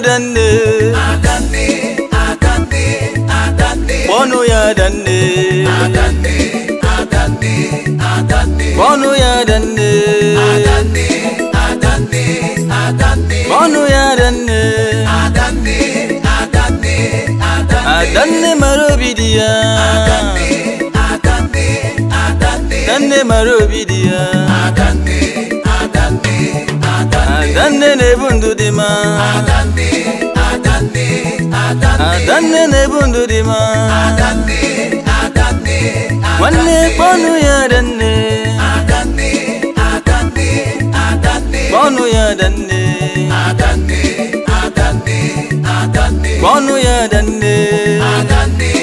danne adanne adanne kpọnụ ya danne kpọnụ ya danne kpọnụ ya danne adanne mara obi dị ya adanne mara obi dị ya adanne adande ne bundu dima Adanne, adanne, adanne Adanne ne bundu dima Adanne, adanne, adanne Wanne ponu ya danne Adanne, adanne, adanne Ponu ya danne Adanne, adanne, adanne Ponu ya danne Adanne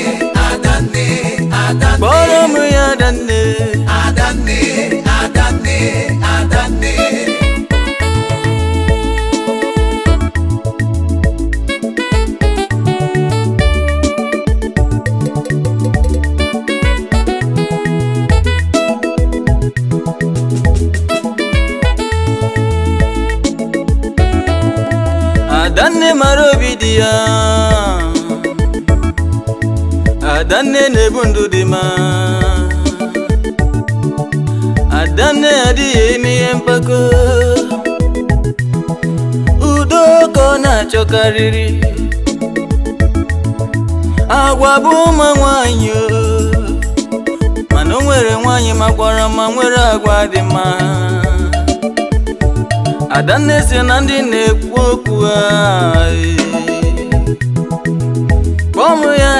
ya adanne na-ebu ndụ dị mma adanne adịghị eme ihe mpako udo ka ọ na-achọkarịrị agwa bụ ụmụ nwanyị mana o nwere nwanyị makwara ma nwere agwa dị mma adanne si na ndị na-ekwu okwu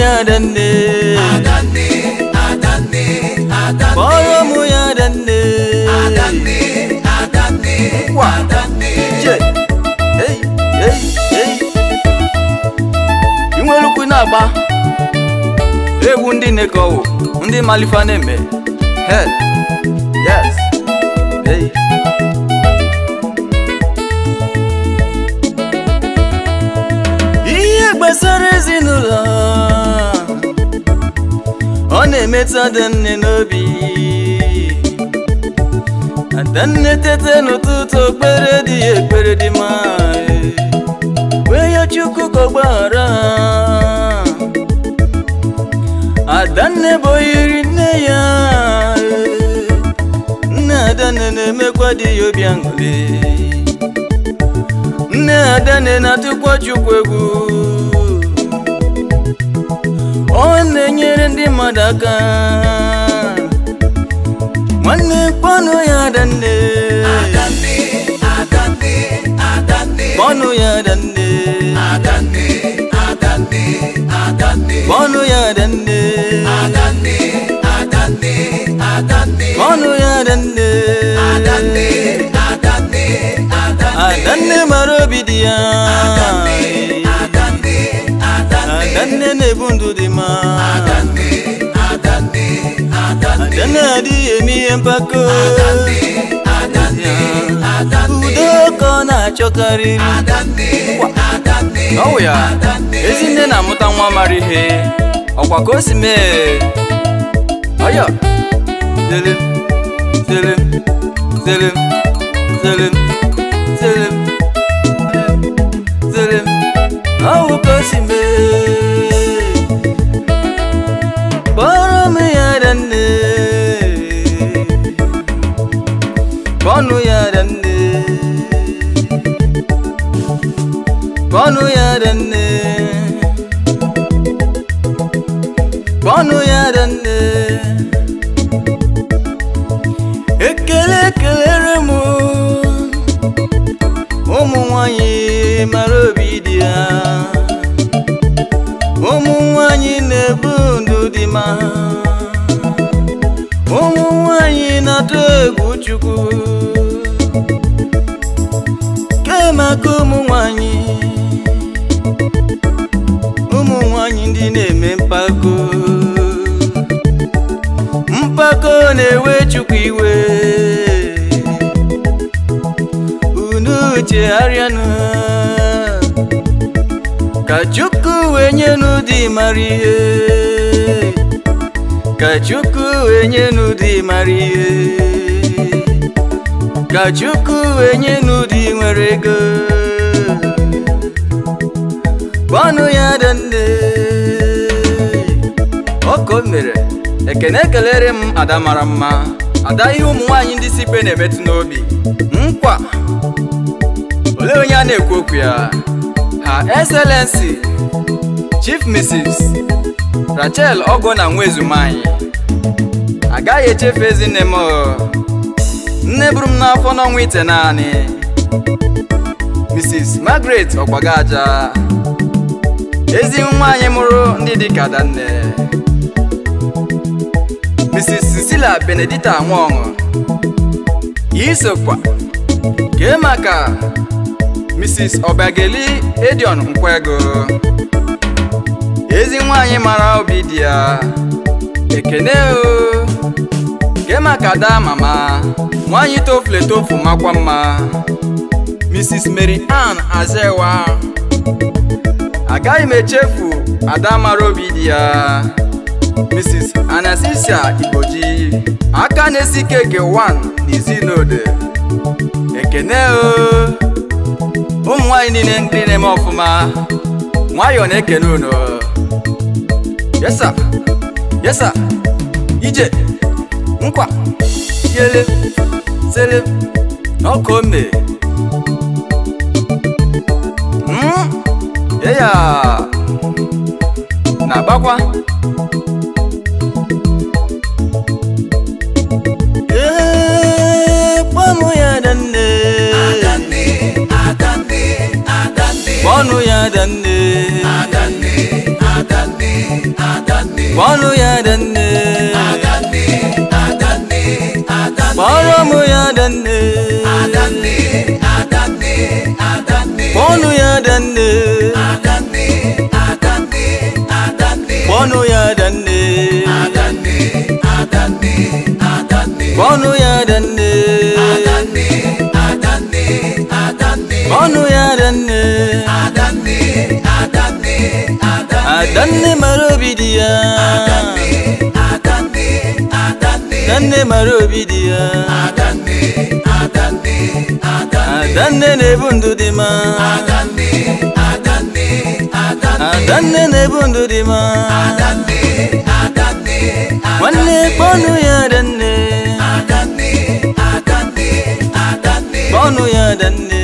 ya adanne adanne adanne kpọrọ mụ ya adanne adanne je i nwere ukwu na-agba ewu ndị na ndị malifa na-eme ihe gbasara ezinụlọ na-emetụ adanne n'obi adanne tete n'ụtụtụ okpere dị ya ekpere dị mma wee ya chukwu ka ọgbaghara adanne bụ oyiri nne ya nne adanne na-emekwa dị ya obi aṅụrị nne na-atụkwa chukwu egwu iwe na-enyere ndị mmadụ aka nwanne kpọnụ ya adande kpọnụ ya adanne kpọnụ ya adande kpọnụ ya adanne adanne mara obi dị ya nne na-ebu ndụ dị mma na adịghị eme ihe mpako udo ka ọ na achọkarị n'ọwụ ya ezi ezinne na-amụta nwa mara ihe ọkwa ka o si mee ọya tele tele tele tele kpọnụ ya nne, kpọnụ ya ekele kelere m ụmụ nwanyị mara obi dị ya ụmụ nwanyị na-ebu ndụ dị ma ụmụ nwanyị na-atụ egwu Chukwu kemaka ụmụ nwanyị nini ndineme mpako mpako newechukwiwe unuche ariana kachuku wenyenu dimarie kachuku wenyenu dimarie kachuku wenyenu dimwerego kwanu yadande ka o mere ekene kelere m ada mara mma ada ihe ụmụ nwaanyị ndị si ibe na-emetụ n'obi nkwa olee onye a na-ekwu okwu ya ha excellency chief mrs rachel ogo na nwa ezumanyị agaghị echefu ezinne m oh. nne buru m n'afọ n'ọnwa ite naanị mrs margaret ọgbagaja ezi nwaanyị mụrụ ndị dị ka adanne Mrs. Cecilia Benedita Nwaọṅụ isokwa kemaka Mrs. obageli Edion Nkwego ezi nwanyi mara obi dị ya ekene o kee maka daa mama nwanyị tofle tofu makwa mma Mrs. Mary Ann Azewa agaghị m echefu ada mara obi di ya Mrs. Anastasia Igboji aka na-esi keke 1 n'izinode ekene ụmụ nwanyị niile ndị na-eme ọfụma nwayọọ na-ekene unu yesa yesa ije nkwa yele sele n'ọkụ ome hmm? eya na-agbakwa Adanne Adanne ya Adanne nne mara obi dị ya na mara obi dị ya adanne na-ebu ndụ dị ma adanne na-ebu ndụ dị ma nwanne kpọnụ ya adanne kpọnụ ya